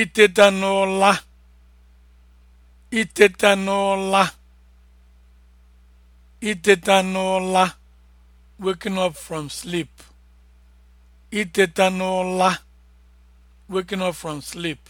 iteta n'ụla iteta n'ụla iteta waking up from sleep waking up from sleep